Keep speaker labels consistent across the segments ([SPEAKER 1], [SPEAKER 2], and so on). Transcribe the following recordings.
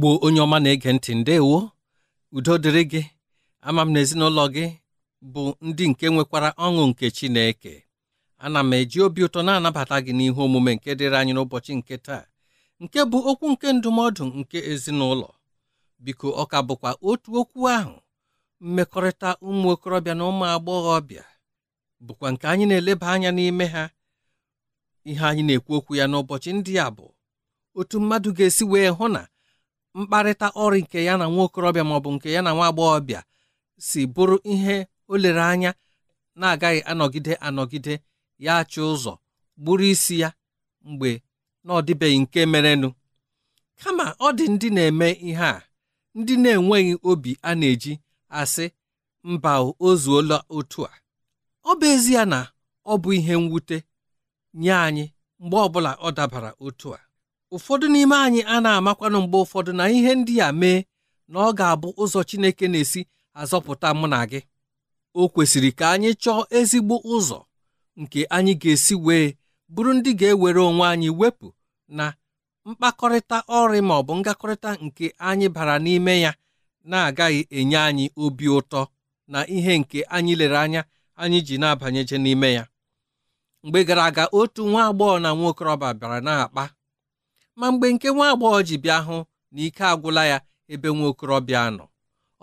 [SPEAKER 1] igbo onye ọma na-ege ntị ndewo udo dịrị gị ama m na ezinụlọ gị bụ ndị nke nwekwara ọṅụ nke Chineke ana m eji obi ụtọ na-anabata gị n'ihe omume nke dịrị anyị n'ụbọchị nke taa nke bụ okwu nke ndụmọdụ nke ezinụlọ biko ọ ka bụkwa otu okwu ahụ mmekọrịta ụmụ okorobịa na ụmụ agbọghọbịa bụkwa nke anyị na-eleba anya n'ime ha ihe anyị na-ekwu okwu ya n'ụbọchị ndị a bụ otu mmadụ ga-esi wee hụ na mkparịta ọrụ nke ya na nwa okorobịa maọbụ nke ya na nwa agbọghọbịa si bụrụ ihe o lere anya na-agaghị anọgide anọgide ya achị ụzọ gburu isi ya mgbe na dịbeghị nke merenụ kama ọ dị ndị na-eme ihe a ndị na-enweghị obi a na-eji asị mba ozuola otu a ọ bụ ezie na ọ bụ ihe mwute nye anyị mgbe ọbụla ọ dabara otu a ụfọdụ n'ime anyị a na-amakwanụ mgbe ụfọdụ na ihe ndị a mee na ọ ga-abụ ụzọ Chineke na-esi azọpụta mụ na gị o kwesịrị ka anyị chọọ ezigbo ụzọ nke anyị ga-esi wee bụrụ ndị ga-ewere onwe anyị wepụ na mkpakọrịta ọrị ma ọ bụ ngakọrịta nke anyị bara n'ime ya na-agaghị enye anyị obi ụtọ na ihe nke anyị lere anya anyị ji na-abanyeje n'ime ya mgbe gara aga otu nwa agbọghọ na nwa okorobịa bịara na-akpa ma mgbe nke nwa agbọghọ ji bịa hụ na ike agwụla ya ebe nwa okorobịa nọ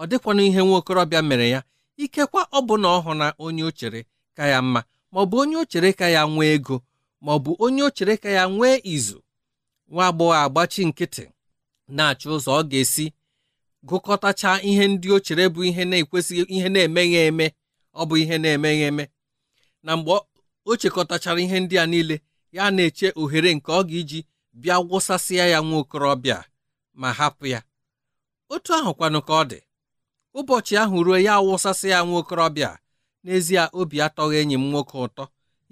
[SPEAKER 1] ọ dịkwana ihe nwa okorobịa mere ya ikekwa ọ bụ na ọ hụ na onye o chere ka ya mma ma ọ bụ onye o chere ka ya nwee ego ma ọ bụ onye o chere ka ya nwee izu nwa agbọghọ agbachi nkịtị na-achọ ụzọ ọ ga-esi gụkọtacha ihe ndị o chere bụ ihe na-ekwesịghị ihe na-emeghị eme ọ bụ ihe na-emeghị eme na mgbe o chekọtachara ihe ndị a niile ya na-eche ohere nke ọ ga-eji bịa gwụsasịa ya nwa okorobịa ma hapụ ya otu ahụkwanụ ka ọ dị ụbọchị ahụ ruo ya awụsasị ya nwa okorobịa n'ezie obi atọghị enyi m nwoke ụtọ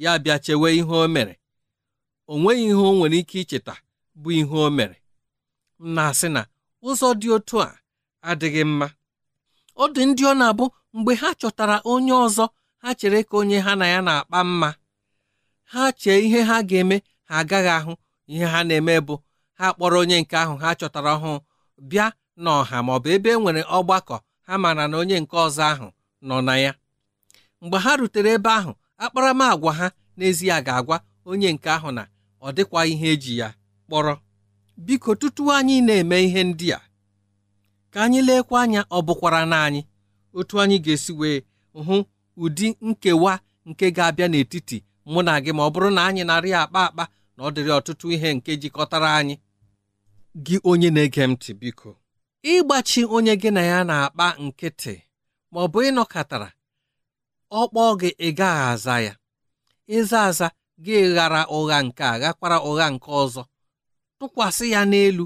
[SPEAKER 1] ya bịa chewe ihe o mere o nweghị ihe o nwere ike icheta bụ ihe o mere m na-asị na ụzọ dị otu a adịghị mma ọ dị ndị ọ na-abụ mgbe ha chọtara onye ọzọ ha chere ka onye ha na ya na-akpa mma ha chee ihe ha ga-eme ha agaghị ahụ ihe ha na-eme bụ ha kpọrọ onye nke ahụ ha chọtara ọhụụ bịa n'ọha ma ọ bụ ebe e nwere ọgbakọ ha mara na onye nke ọzọ ahụ nọ na ya mgbe ha rutere ebe ahụ akparamagwa ha n'ezie ga-agwa onye nke ahụ na ọ dịkwa ihe eji ya kpọrọ biko tutu anyị na-eme ihe ndị a ka anyị leekwa anya ọ bụkwara na anyị otu anyị ga-esi wee hụ ụdị nkewa nke ga-abịa n'etiti mụ na gị ma ọ bụrụ na anyị narị akpa akpa na ọ dịrị ọtụtụ ihe nke jikọtara anyị gị onye na-ege ntị biko ịgbachi onye gị na ya na-akpa nkịtị ma ọ bụ ịnọkọtara ọ kpọọ gị ịgaghị aza ya ịza aza gị ghara ụgha nke a ghakwara ụgha nke ọzọ tụkwasị ya n'elu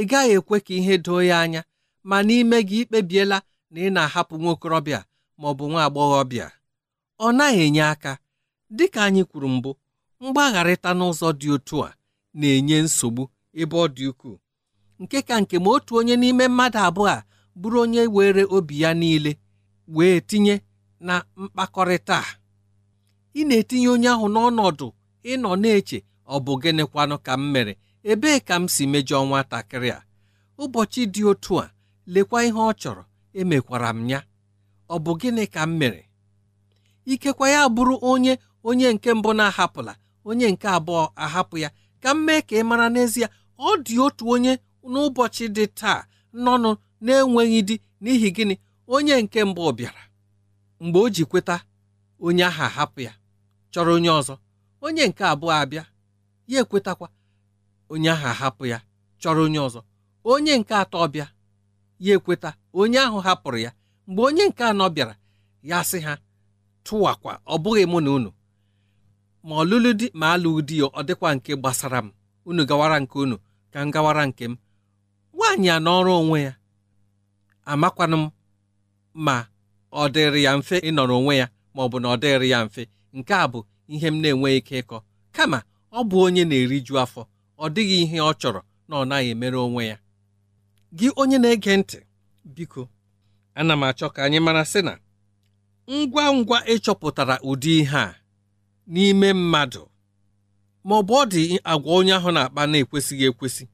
[SPEAKER 1] ị gaghị ekwe ka ihe doo ya anya ma n'ime gị ikpebiela na ị na-ahapụ nwa okorobịa maọbụ bụ nwa agbọghọbịa ọ naghị enye aka dịka anyị kwuru mbụ mgbagharịta n'ụzọ dị otu a na-enye nsogbu ebe ọ dị ukwuu nke ka nke ma otu onye n'ime mmadụ abụọ a bụrụ onye were obi ya niile wee tinye na mkpakọrịta a ị na-etinye onye ahụ n'ọnọdụ ịnọ na-eche ọ bụ gịnịkwanụ ka m mere ebee ka m si mejọọ nwatakịrị a ụbọchị dị otu a lekwa ihe ọ chọrọ emekwara m ya ọ bụ gịnị ka m mere ikekwa ya bụrụ onye onye nke mbụ na-ahapụla onye nke abụọ ahapụ ya ka m mee ka ị mara n'ezie ọ dị otu onye n'ụbọchị dị taa nọnụ na-enweghị di n'ihi gịnị onye nke mbụ bịara mgbe o ji kweta onye ahụ ahapụ ya chọrọ onye ọzọ onye nke abụọ abịa ya ekwetakwa onye ahụ ahapụ ya chọrọ onye ọzọ onye nke atọ bịa ya ekweta onye ahụ hapụrụ ya mgbe onye nke anọ bịara ya sị ha tụwakwa ọ bụghị mụ na unu ma ọlụlụ di ma alụghị di ya ọ dịkwa nke gbasara m unu gawara nke unu ka m gawara nke m nwaanyị a n'ọrụ onwe ya amakwanụ m ma ọ dịrị ya mfe ịnọrọ onwe ya ma ọ bụ na ọ dịrị ya mfe nke a bụ ihe m na-enweghị ike ịkọ kama ọ bụ onye na-eriju afọ ọ dịghị ihe ọ chọrọ na ọ naghị emere onwe ya gị onye na-ege ntị biko ana m achọ ka anyị mara sị na ngwa ngwa ịchọpụtara ụdị ihe a n'ime mmadụ ma ọ bụ ọ dị agwa onye ahụ na-akpa na-ekwesịghị ekwesị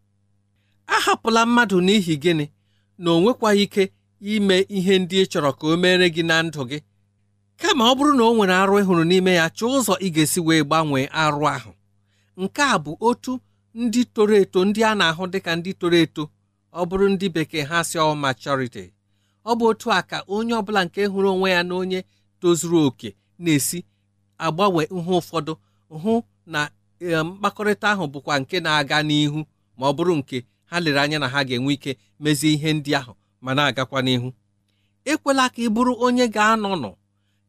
[SPEAKER 1] ahapụla mmadụ n'ihi gịnị na o nwekwaghị ike ime ihe ndị ị chọrọ ka o meere gị na ndụ gị kama ọ bụrụ na o nwere arụ ịhụrụ n'ime ya chọọ ụzọ ị ga-esi wee gbanwee arụ ahụ nke a bụ otu ndị toro eto ndị a na-ahụ dịka ndị toro eto ọ bụrụ ndị bekee ha si ọ maturity ọ bụ otu a ka onye ọ bụla nke hụrụ onwe ya na onye tozuru oke na-esi agbanwe ihe ụfọdụ hụ na eh, mkpakọrịta ahụ bụkwa nke na-aga n'ihu ma ọ bụrụ nke ha lere anya na ha ga-enwe ike mezie ihe ndị ahụ ma na-agakwa n'ihu ekwela ka ị bụrụ onye ga anọ nọ,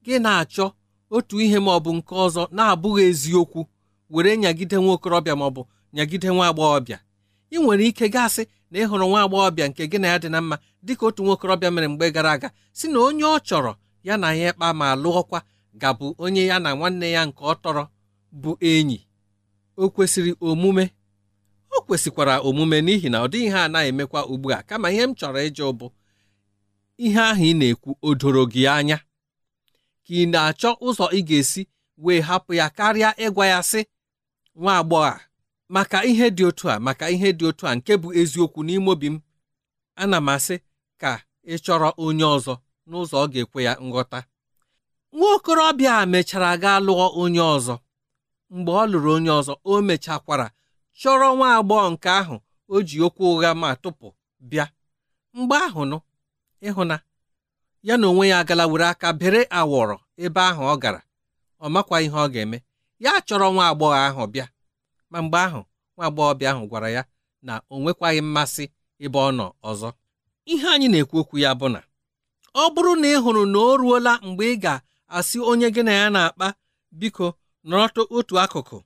[SPEAKER 1] gị na-achọ otu ihe ma ọ bụ nke ọzọ na-abụghị eziokwu were nyagide nwa okorobịa ma ọ bụ nyagide nwa agbọghọbịa ị nwere ike gasị na ịhụrụ nwa agbọghọbịa nke gị na ya dị na mma dịka otu nwa okorobịa mere mgbe gara aga si na onye ọ chọrọ ya na ya ịkpa ma lụọkwa gabụ onye ya na nwanne ya nke ọ tọrọ bụ enyi o kwesịrị omume o kwesịkwara omume n'ihi na ọ dịghị ihe a na-emekwa ugbu a kama ihe m chọrọ ịjụ bụ ihe ahụ ị na-ekwu o doro gị anya ka ị na-achọ ụzọ ị ga-esi wee hapụ ya karịa ịgwa ya sị nwa agbọghọ maka ihe dị otu a maka ihe dị otu a nke bụ eziokwu n'ime obi m ana m asị ka ị chọrọ onye ọzọ n'ụzọ ọ ga-ekwe ya nghọta nwa okorobịa a mechara gaa lụọ onye ọzọ mgbe ọ lụrụ onye ọzọ o mechakwara chọrọ nwa agbọghọ nke ahụ o ji okwu ụgha ma tụpụ bịa mgbe ahụ nụ ịhụna ya na onwe ya gala were aka bere awọrọ ebe ahụ ọ gara ọ makwa ihe ọ ga-eme ya chọrọ nwa agbọghọ ahụ bịa ma mgbe ahụ nwa agbọghọbịa ahụ gwara ya na o nwekwaghị mmasị ebe ọ nọ ọzọ ihe anyị na-ekwu okwu ya bụ na ọ bụrụ na ị hụrụ na o ruola mgbe ị ga asị onye gị na ya na-akpa biko nọrọtụ otu akụkụ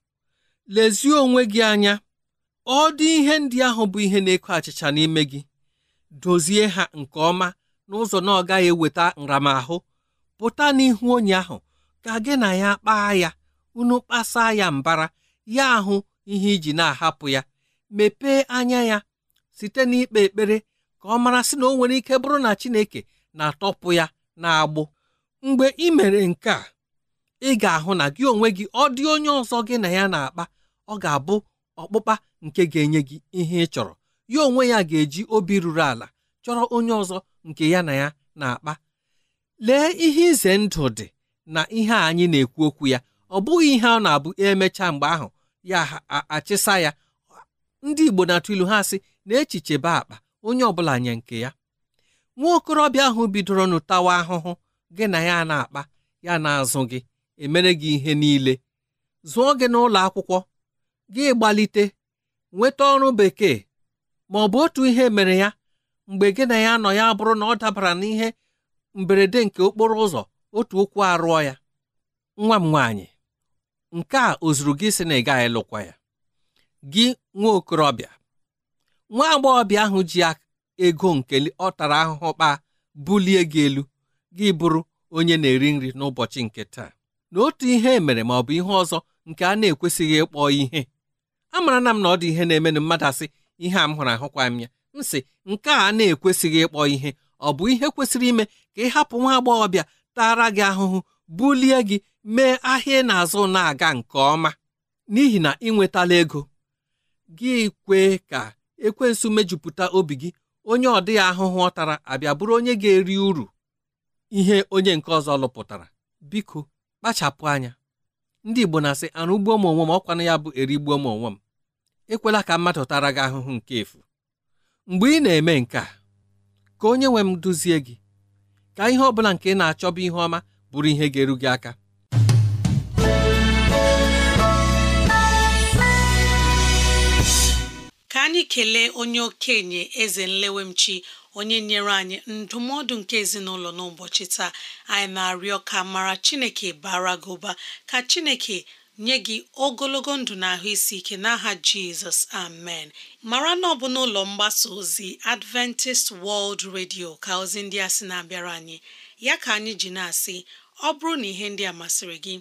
[SPEAKER 1] lezie onwe gị anya ọ dị ihe ndị ahụ bụ ihe na-eko achịcha n'ime gị dozie ha nke ọma n'ụzọ na ọ gaghị eweta nramahụ pụta n'ihu onye ahụ ka gị na ya kpaa ya unu kpasaa ya mbara ya ahụ ihe iji na-ahapụ ya mepee anya ya site n'ikpe ekpere ka ọ mara sị na o nwere ike bụrụ na Chineke na-atọpụ ya na agbụ mgbe ị mere nke a ị ga-ahụ na gị onwe gị ọ dị onye ọzọ gị na ya na-akpa ọ ga-abụ ọkpụkpa nke ga-enye gị ihe ị chọrọ ya onwe ya ga-eji obi ruru ala chọrọ onye ọzọ nke ya na ya na-akpa lee ihe ize ndụ dị na ihe anyị na-ekwu okwu ya ọ bụghị ihe ọ na-abụ emechaa mgbe ahụ ya achịsa ya ndị Igbo na-atụ ilu ha sị na echiche be akpa onye ọ bụla nye nke ya nwa okorobịa ahụ bidoro nụtawa ahụhụ gị na ya na-akpa ya na-azụ gị emere gị ihe niile zụọ gị n'ụlọ akwụkwọ gị gbalite nweta ọrụ bekee ma ọ bụ otu ihe mere ya mgbe gị na ya nọ ya bụrụ na ọ dabara n'ihe mberede nke okporo ụzọ otu ụkwụ arụọ ya nwa m nwaanyị nke a o zuru gị sị na ị gaghị lụkwa ya gị nwa okorobịa nwa agbọghọbịa ahụ ji ego nke ọ tara ahụhụ kpaa bulie gị elu gị bụrụ onye na-eri nri n'ụbọchị nke taa na otu ihe e mere ma ọ bụ ihe ọzọ nke a na-ekwesịghị ịkpọ ihe amara na m na ọ dị ihe na-emenụ mmadụ asị ihe a m hụrụ ahụkwa m ya m sị nke a na-ekwesịghị ịkpọ ihe ọ bụ ihe kwesịrị ime ka ị hapụ nwa agbọghọbịa tara gị ahụhụ bulie gị mee ahịa ị na-azụ na-aga nke ọma n'ihi na ị nwetala ego gị kwe ka ekwensu mejupụta obi gị onye ọ dịghị ahụhụ ọ tara abịa bụrụ onye ga-eri uru ihe onye nke ọzọ lụpụtara biko kpachapụ anya ndị Igbo na-asị arụ ugbo m onwe m ọkwanụ ya bụ erigbuo m onwe m ekwela ka mmadụ tara gị ahụhụ nke efu mgbe ị na-eme nke a ka onye nwe m duzie gị ka ihe ọ bụla nke ị na-achọba ihe ọma bụrụ ihe ga-eru gị aka
[SPEAKER 2] ka anyị kelee onye okenye eze nlewemchi onye nyere anyị ndụmọdụ nke ezinụlọ n'ụbọchị taa anyị na-arịọ ka mara chineke bara gị ụba ka chineke nye gị ogologo ndụ na ahụ isi ike n'aha jizọs amen mara na ọ bụ n'ụlọ mgbasa ozi adventist world radio ka ozi ndị a sị na-abịara anyị ya ka anyị ji na-asị ọ bụrụ na ihe ndị a masịrị gị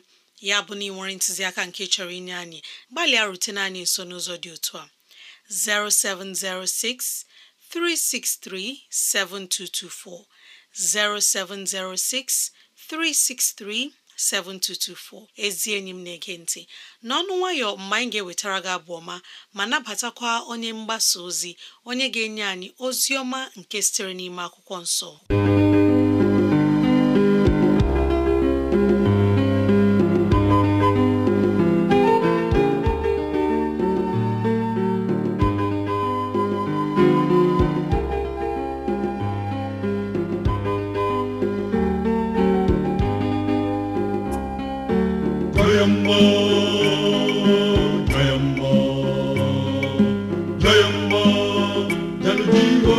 [SPEAKER 2] ya bụ na ị nwere ntụziaka nke chọrọ inye anyị gbalịa rutene anyị nso n'ụzọ dị otu a 0706 363 7224 0706 363 7224 ezi enyi m na-ege nti, n'ọnụ nwayọ mgbe anyị ga-ewetara gị abụ ma ma nabatakwa onye mgbasa ozi onye ga-enye anyị ozi ọma
[SPEAKER 3] nke sitere n'ime akwụkwọ nso.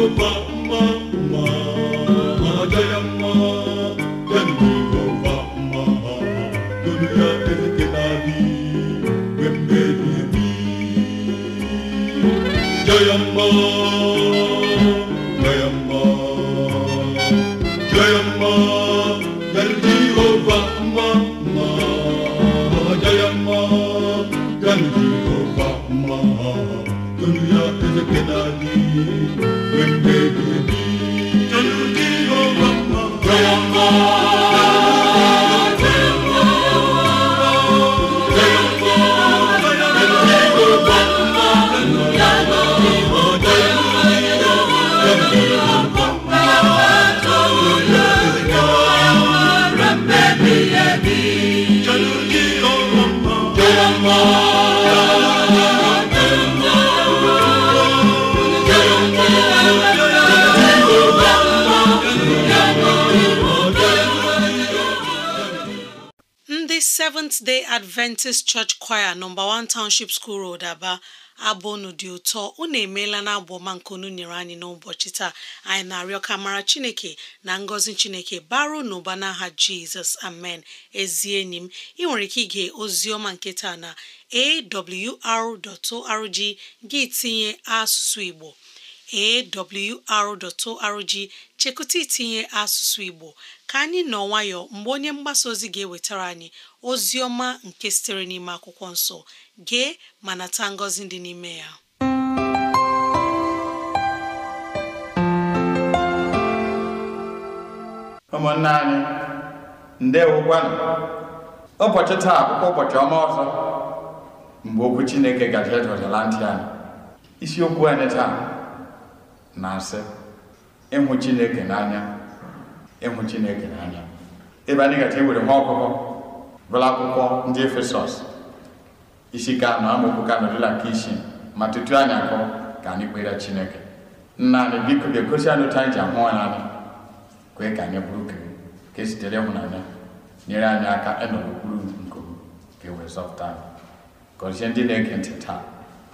[SPEAKER 3] mma mma
[SPEAKER 2] ndị Seventh Day Adventist Church Choir nọmba 1 Township School Road Aba abụ unu dị ụtọ unu emeela na abụ ọma nke unu nyere anyị n'ụbọchị taa anyị na-arịọ ka mara Chineke na ngọzi Chineke baro n'ụba n'aha Jizọs amen ezi enyi m ị nwere ike ige ozi ọma nke taa na awr.org gị tinye asụsụ Igbo awr.org chekụta itinye asụsụ Igbo ka anyị nọ nwayọ mgbe onye mgbasa ozi ga-ewetara anyị ozi ọma nke sitere n'ime akwụkwọ nsọ gee ma nata ngọzi dị n'ime ya
[SPEAKER 4] ụmụnne anyị ndewokwanụ ụbọchị taa akwụkwọ ụbọchị ọma ọzọ mgbe okwu chineke gaji edọdịla ntị anyị isiokwu anyị taa na-asị ịhụ chineke n'anya ịhụ chineke n'anya ebe anyị gaji ewere nwa ọkụkọ bụla akwụkwọ ndị efesọs isi ka anọ amaokwu ka nọdụla nke isi ma tutu anyị akọ ka anyị kpere chineke nna anyị biko ga-egosi anyị otu anyị ji ahụ anyị anya kwee ka anyị bụrụ kere ka esitere ịhụnanya nyere anyị aka ịnọrọ okpuru nke ka e wee zọpụta anyị kọrịsịa ndị na-ege ntị taa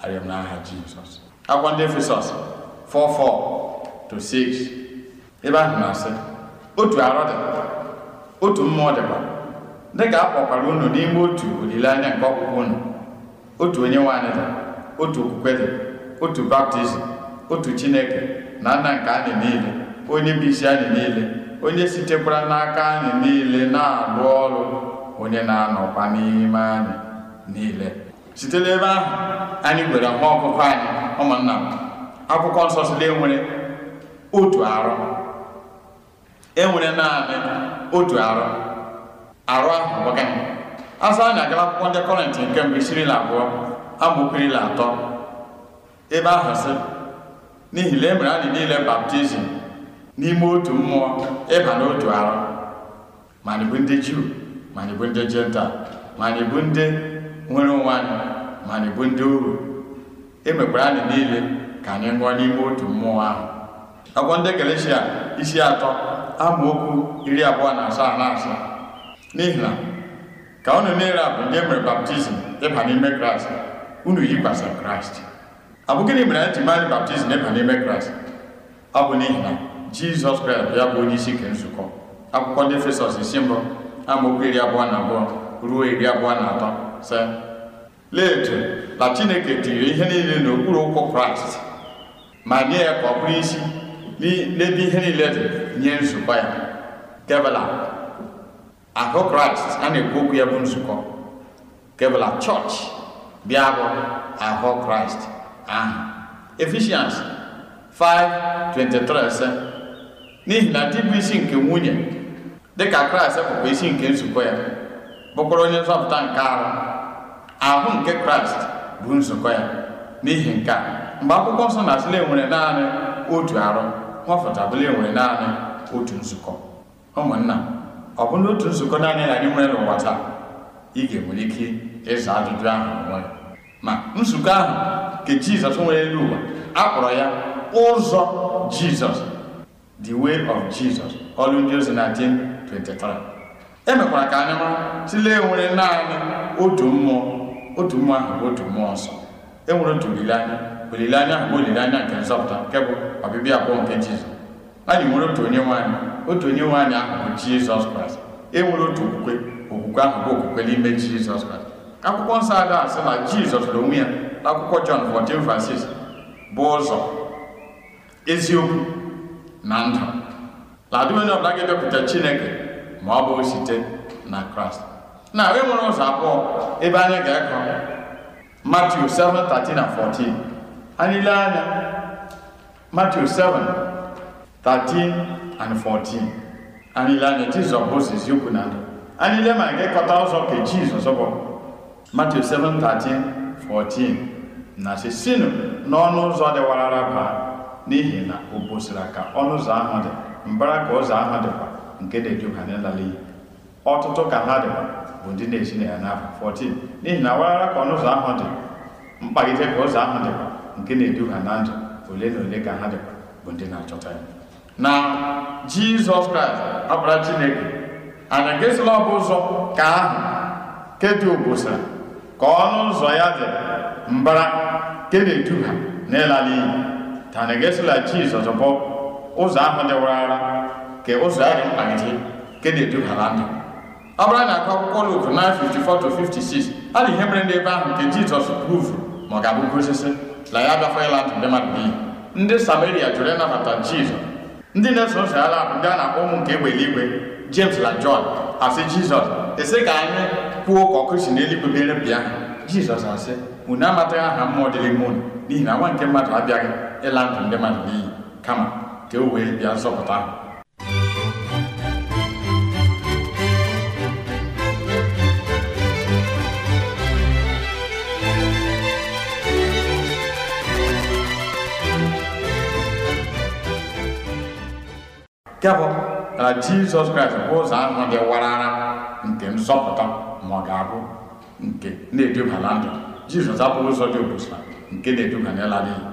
[SPEAKER 4] arịọ m n'aha Jizọs ndị Efesọs 4:4-6 ebe ahụ na-asị otu arọ dị otu mmụọ dịkwa dị ka a unu n'ime otu olileanya nke ọkpụkpụ unu otu onye nwaanyị dị otu okwukwe dị otu baptizim otu chineke na nna nke anyị niile onye bụ isi anyị niile onye sitekwara n'aka anyị niile na-alụ ọrụ onye na-anọkwa n'ime anyị niile site n'ebe ahụ anyị gwere nwa ọkụkọ anyị ụmụnna m akwụkwọ nsọ sịrị enwere otu arụ enwere naanị otu arụ arụ ahụ bụ gịnị anyị agala akwụkwọ ndị kọrịntị nke mbụ isirila abụọ amaokerila atọ ebe ahụ sị n'ihi na e mere anyị niile baptizim n'ime otu mmụọ ịba n'otu arụ ma anyị bụ ndị juu ma anyị bụ ndị jental ma anyị bụ ndị nwere onwe anyị ma anyị bụ ndị ohu emekwara anyị niile ka anyị ṅụọ n'ime otu mmụọ ahụ akwụkwọ ndị Galeshia isi atọ amaokwu iri abụọ na asaa na asaa n'ihi na ka unu niile a bụ ndị emere baptizim ịba n'ime kraịst unu yikwasị kraịst ọ bụ gịnị mere anyị ji baptizim ịba n'ime kraịst ọ bụ n'ihi na jizọs kraịst ya bụ onye isi nke nzukọ akwụkwọ ndị efesọs isi mbụ amaokwu iri abụọ na abụọ ruo iri abụọ na atọ se lee na chineke tiri ihe niile n'okpuru ụkwụ kraịst ma nye ya ka ọ bụrụ isi n'ebe ihe niile dị nye nzukọ ya kevela ahụ kraịst a na-ekwu ya bụ nzukọ kebela chọọchị bịa bụ ahụ kraịst ahụ efishans 5:23 sị n'ihi na dị bụ isi nke nwunye dịka kraịst bụkwa isi nke nzukọ ya bụkwara onye nzọpụta nke arụ ahụ nke kraịst bụ nzukọ ya n'ihi nke a mgbe akwụkwọ nsọ na-asịla nwere naanị otu arụ nwafọtabụla enwere naanị otu nzukọ ụmụnna ọ bụ na otu nzukọ naanị anyị nwere n'ụwa taa ị ga-enwere ike ịza ajụjụ ahụ onwe ma nzukọ ahụ nke jizọs nwere elu ụwa a kpọrọ ya ụzọ jizọs the way of jizọs ọrụ ndị ozi na 10:23 emekwara ka anyị mara tụlee nwere naanị otu mmụọ otu mmụọ ahụ bụ otu mmụọ nsọ e nwere otu olileanya olileanya ahụ bụ olileanya nke nzọpụta nke bụ ọbịbịa abụọ nke jizọs anyị nwere otu onye nwaanyị otu onye nwaanyị ahụ bụ jizọs kraịst e nwere otu okwukwe okwukwe ahụ bụ okwukwe n'ime jizọs kraịst akwụkwọ nsọ ada asị na jizọs na onwe ya na akwụkwọ jọn 14:6 bụ ụzọ eziokwu na ndụ ladụ onye ọbụla ga-ebepụta chineke ma ọ bụ site na kraịst na e nwere ụzọ abụọ ebe anyị ga-akọ Matiu 7:13 na 14 anyị lee anya Matiu 7:13 and 14 anyị lee anya Jizọs bụ ziziokwu na ndụ anyị lee ma ga-ekọta ụzọ ka Jizọs bụ Matiu 7:13 14 na sisinụ n'ọnụ ụzọ dịwarara baa n'ihi na o bosiri ka ọnụ ụzọ ahụ dị mbara ka ụzọ ahụ dịkwa nke na-eduga ọtụtụ ka ha dịkwa bụ ndị na-esi na ya n'afọ 14 n'ihi na awarara ka ọnụ ụzọ ahụ dị mkpagide ka ụzọ ahụ dịkwa nke na-edu ha na ndụ ole na ole ka ha dịkwa bụ ndị na-achọta ya na jizọs kraịst ọbara chineke anyị ga-esila ụzọ ka ahụ kedu obosara ka ọnụ ụzọ ya dị mbara nke na-edu ha n'ịla n'iyi ta anyị ga-esila jizọs bụ ụzọ ahụ dị warara ka ụzọ ya dị mkpagide nke na-edu ha na ndụ ọ bụrụ na akụ akwụkwọ Luk 9:54 to 56 a na ihe mere ndị ebe ahụ nke Jizọs provuru ma ọ ga-abụ osisi na ya abịakwa ịla ndụ ndị mmadụ n'iyi ndị Samaria jụrụ ịnabata Jizọs ndị na-eso ụzọ ya labụ ndị a na-akpọ ụmụ nke egbe eluigwe James na John asị Jizọs esi ka anyị kwuo ka ọkụ n'eluigwe mere bịa Jizọs asị unu amataghị aha mmụọ dịrị ime unu n'ihi na nwa nke mmadụ abịaghị ịla ndụ ndị mmadụ n'iyi kama ka o wee bịa zọpụta ahụ nke bụ na jizọs kraịst bụ ụzọ ahụ dị warara nke nzọpụta ma ọ ga-abụ nke na-eduba na ndụ jizọs abụghị ụzọ dị obosa nke na-eduba n'ịla n'iyi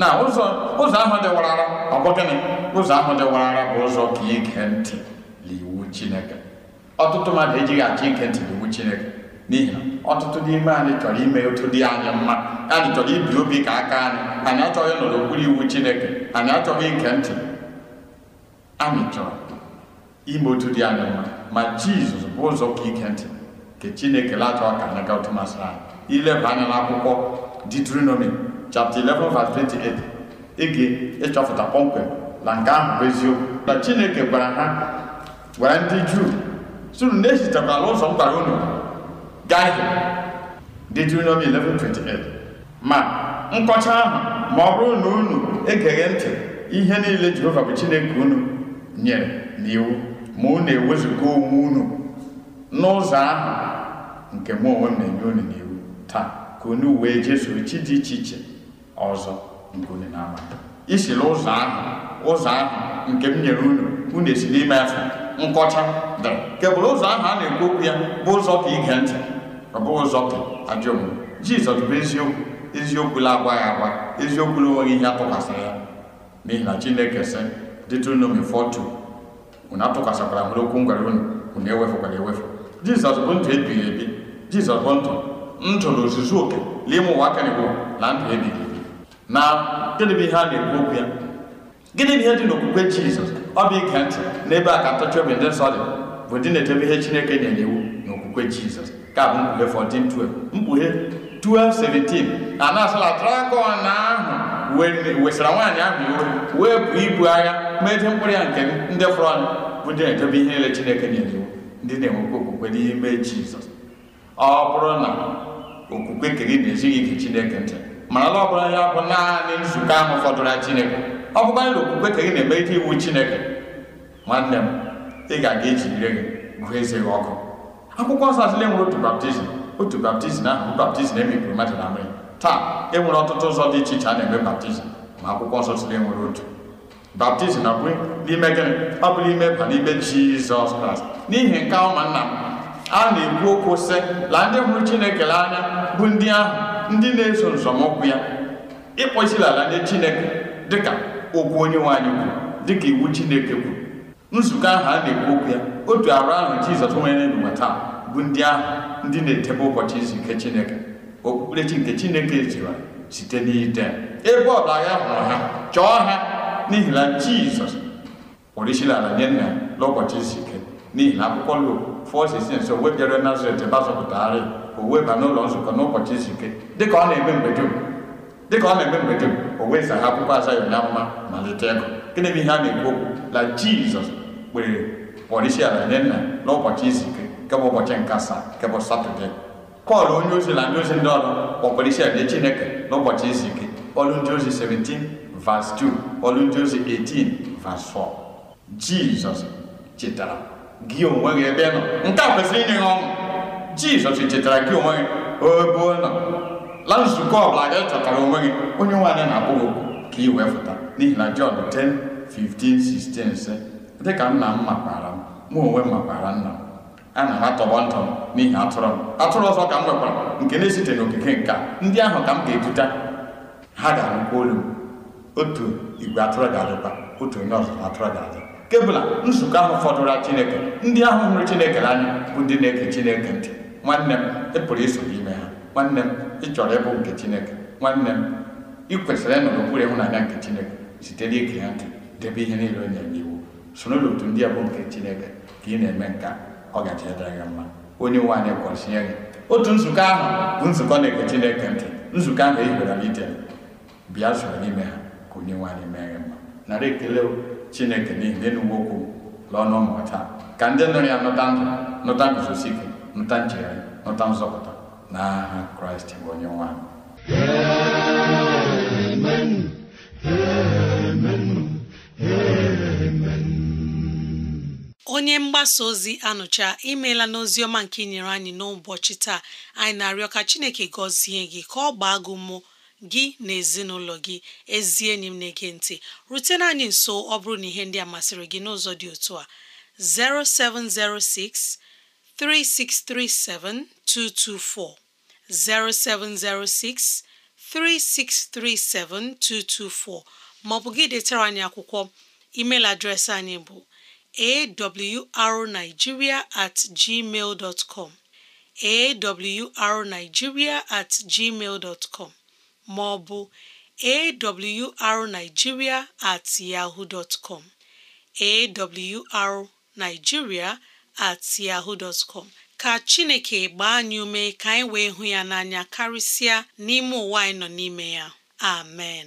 [SPEAKER 4] na ụzọ ahụ dị warara ọ bụ gịnị ụzọ ahụ dị warara bụ ụzọ ka ige ntị n'iwu chineke ọtụtụ mmadụ ejighị achọ ike ntị n'iwu chineke n'ihi na ọtụtụ n'ime anyị chọrọ ime otu dị anyị mma anyị chọrọ ibi obi ka aka anyị anyị achọghị nọrọ okpuru iwu chineke anyị achọghị ike ntị anyị chọrọ ime otu dị anyị mma ma jizọs bụ ụzọ ka ige ntị nke chineke lachọ ka anyị gaa otu masịrị anyị ileba anya n'akwụkwọ Deuteronomy chapter 11 verse 28 ege ịchọpụta kpọmkwem na nke ahụ bụ eziokwu na chineke gwara ha gwara ndị juu sunu na-esitekwala ụzọ m gwara unu gaa Deuteronomy 11:28 ma nkọcha ahụ ma ọ bụrụ na unu egeghị ntị ihe niile jehova bụ chineke unu nye n'iwu ma na ewezụga onwe unu n'ụzọ ahụ nke mụ onwe m na-enye unu n'iwu taa ka unu wee jesoro chi dị iche iche ọzọ nke unu na-ama isila ụzọ ahụ ụzọ ahụ nke m nyere unu unu esi n'ime afọ nkọcha dị nke ụzọ ahụ a na-ekwu okwu ya bụ ụzọ ka ige ntị ọ bụghị ụzọ ka ajọ omume jizọs bụ eziokwu eziokwu la agwaghị agwa eziokwu na onweghị ihe atụkwasịrị ya n'ihi na chineke sị Deuteronomy 40 unatụkasakwara nwere okwu ngwara unu unu ewefụkwara ewefu Jizọs bụ ndụ ebighị ebi Jizọs bụ ndụ ndụ na ozuzu oke n'ime ụwa na na ebighị ebi na gịnị bụ ihe a na-ekwu okwu ya gịnị ihe dị n'okwukwe Jizọs ọ bụ ige ntị n'ebe a ka ntọchi obi ndị nsọ bụ na ihe Chineke nyere iwu na Jizọs ka bụ 14:12 mkpughe a na ahụ wesara nwaanyị ahụ wee bụ ibu agha meje mkpụrụ ya nke ndị fọrọ bụ ndị na-edobe ihe niile Chineke nyere iwu ndị na-enwekwa okwukwe n'ime Jizọs ọ bụrụ na okwukwe nke gị na-ezighị gị Chineke ntị mana ala ọ bụla ya bụ naanị nzukọ ahụ fọdụrụ ya Chineke ọ bụkwa na okwukwe nke gị na-emerite iwu Chineke nwanne m ị ga-aga iji ire gị gụọ eze gị ọkụ akwụkwọ nsọ atụle nwere otu baptizim otu baptizim ahụ bụ baptizim emikpụrụ mmadụ na mmiri taa e nwere ọtụtụ ụzọ dị iche iche a na-eme baptizim ma akwụkwọ nsọ atụle nwere otu baptizim abụghị n'ime gịnị ọ bụrụ ime ba n'ime jizọs kraịst n'ihi nke ụmụnna m a na-ekwu okwu sị la ndị hụrụ chineke nanya bụ ndị ahụ ndị na-eso nzọmụkwụ ya ịkpọ ala nye chineke dịka okwu onye nwanyị kwuru dịka iwu chineke kwuru nzukọ ahụ a na-ekwu okwu ya otu arụ ahụ jizọs nwere n'ụwa taa bụ ndị ahụ ndị na-edebe ụbọchị izu ike chineke okpukperechi nke chineke ziri site n'ite ebe ọ bụ agha hụrụ ha chọọ ha n'ihi na jizọs pụrụ isila ala nye nna n'ụbọchị izu ike n'ihi na akwụkwọ luk fọsis so webịara nazaret ebe a zọpụtagharị o weba n'ụlọ nzukọ n'ụbọchị izu ike dịka ọ na-eme mgbe dum dịka ọ na-eme mgbe dum o weza akwụkwọ azaghị na mma malite ego gịnị bụ ihe a na-ekwu okwu na jizọs kpere kpọrọ isi ala nye nna n'ụbọchị izu ike nke bụ ụbọchị nke asaa nke bụ satọde pọl onye ozi na ndị ozi ndị ọrụ kpọkwara isi ala chineke n'ụbọchị izu ike ọrụ ndị ozi 17 Vas 2 olu 18 vas 4 Jizọs chetara gị onwe gị ebe nọ nke a kwesịrị inye ọṅụ Jizọs chetara gị onwe gị ebe nọ la nzukọ ọbụla gị chọtara onwe gị onye nwaanyị na-akpụ gị ka ị wee fụta n'ihi na John 10 16 sị dịka nna m makwara m mụ onwe m makwara nna m ana m atọgbọ ntọ m n'ihi atụrụ m atụrụ ọzọ ka m nwekwara nke na-esite n'okike nke ndị ahụ ka m ga-eduta ha ga-anụkwa olu m otu igwe atụrụ ga-adịkwa otu onye ọzọ atụrụ ga-adị kebụla bụla nzukọ ahụ fọdụrụ Chineke ndị ahụ hụrụ Chineke bụ ndị na-ege Chineke ntị nwanne m ị pụrụ iso n'ime ha nwanne m ị chọrọ ịbụ nke Chineke nwanne m ị kwesịrị ịnọ n'okpuru ịhụnanya nke Chineke site n'ige ya ntị debe ihe niile onye n'iwu soro ndị a bụ nke Chineke ka ị na-eme nke ọ gaji edere gị mma onye nwe anyị na-ege Chineke ntị nzukọ ahụ e bịa soro n'ime ha onye nwanyị mere mma narị ekele chineke niile na enugwu okwu lọnụ ụmụ taa ka ndị nụrụ ya nụta ndụ nụta guzosi ike nụta nchegharị nụta nzọpụta n'aha kraịst bụ onye nwe anyị
[SPEAKER 2] amen amen amen onye mgbasa ozi anụcha imeela n'ozi ọma nke nyere anyị n'ụbọchị taa anyị na-arịọ ka chineke gọzie gị ka ọ gbaa gị mmụọ gị na ezinụlọ gị ezi enyi m na-ege ntị rutena anyị nso ọ bụrụ na ihe ndị a masịrị gị n'ụzọ dị otu a 0706 3637 224 0706 3637 224 maọbụ gị detara anyị akwụkwọ email adreesị anyị bụ awrnigeria at gmail com awrnigeria at gmail dot com ma ọ bụ awrnigeria at at yaho dotcom ka Chineke gbaa anyị ume ka anyị wee hụ ya n'anya karịsịa n'ime ụwa anyị nọ n'ime ya amen